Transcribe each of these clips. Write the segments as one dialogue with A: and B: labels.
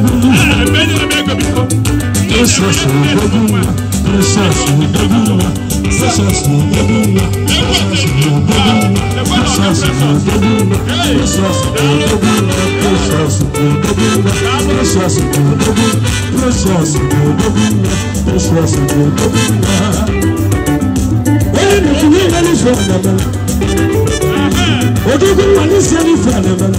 A: Jesus Daguma, Jesus Daguma, Jesus Daguma, Jesus Daguma, Jesus Daguma, Jesus Daguma, Jesus Daguma, Jesus Daguma, Jesus Daguma, Jesus Daguma. Oye na kunye na ni fún anamala, ojogun wa ni sẹ́ni fún anamala.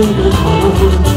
A: 真的好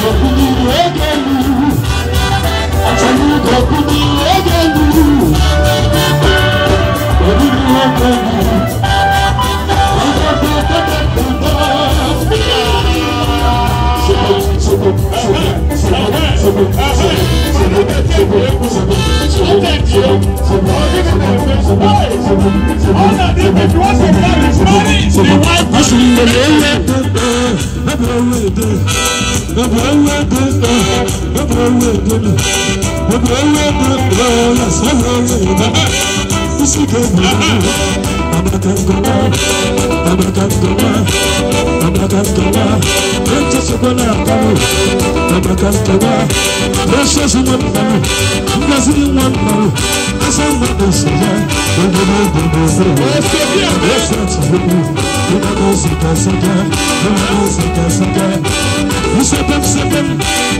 A: All that they want to know is money, the white person. I'm not going to Abrakadabra, abrakadabra, Prince Sokola Tamu, abrakadabra, Precious One Tamu, Blessed One Tamu, Asamba Dosaya, Bangaba Bangaba, Blessed One, Bangaba Sita Sita, Bangaba Sita Sita, Usapam Sapam,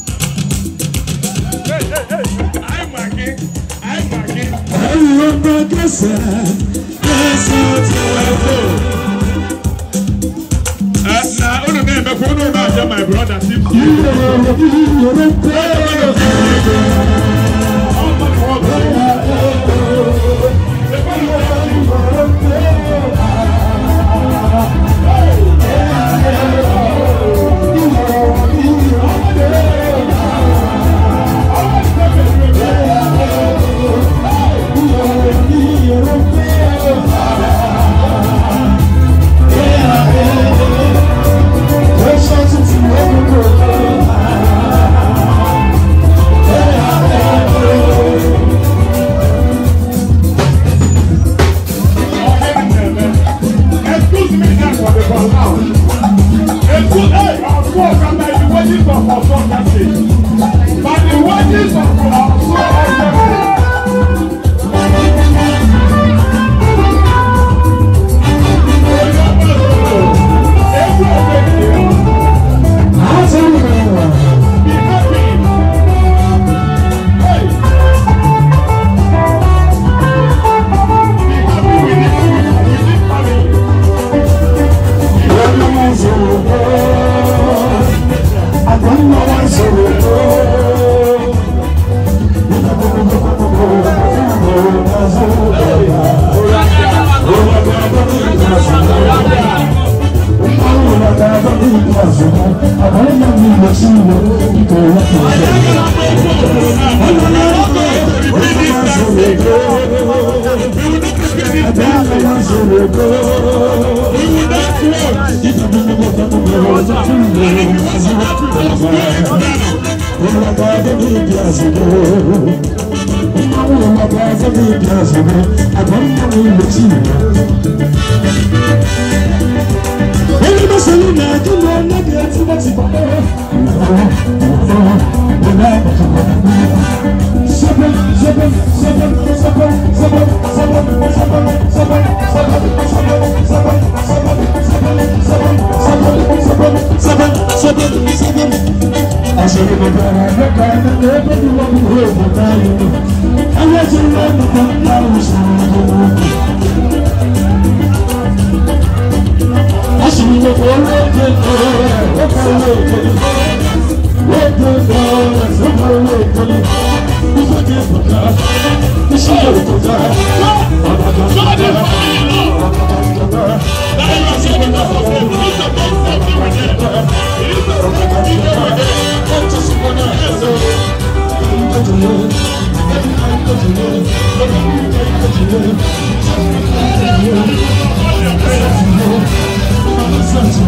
A: Ayọ̀mọ̀ kẹsà kẹsà ti wà fò. Na unu na-emekwa unu na-aja my brother. Yorùbá Yorùbá. lọ sí ìwọ ìkọ̀ ọlọ́pàá ọ̀sẹ̀. Thank you.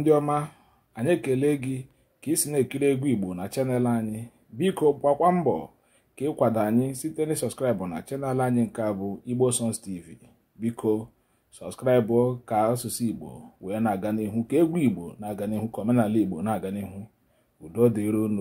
A: ndị ọma anyị ekele gị ka ị si na-ekiri egwu igbo na chanel anyị biko gbakwa mbọ ka ịkwado anyị site na sọskraịbụ na chanel anyị nke bụ igbo songs tv biko sọskraịbụ ka asụsụ igbo wee na-aga n'ihu ka egwu igbo na-aga n'ihu ka omenala igbo na-aga n'ihu udo dịron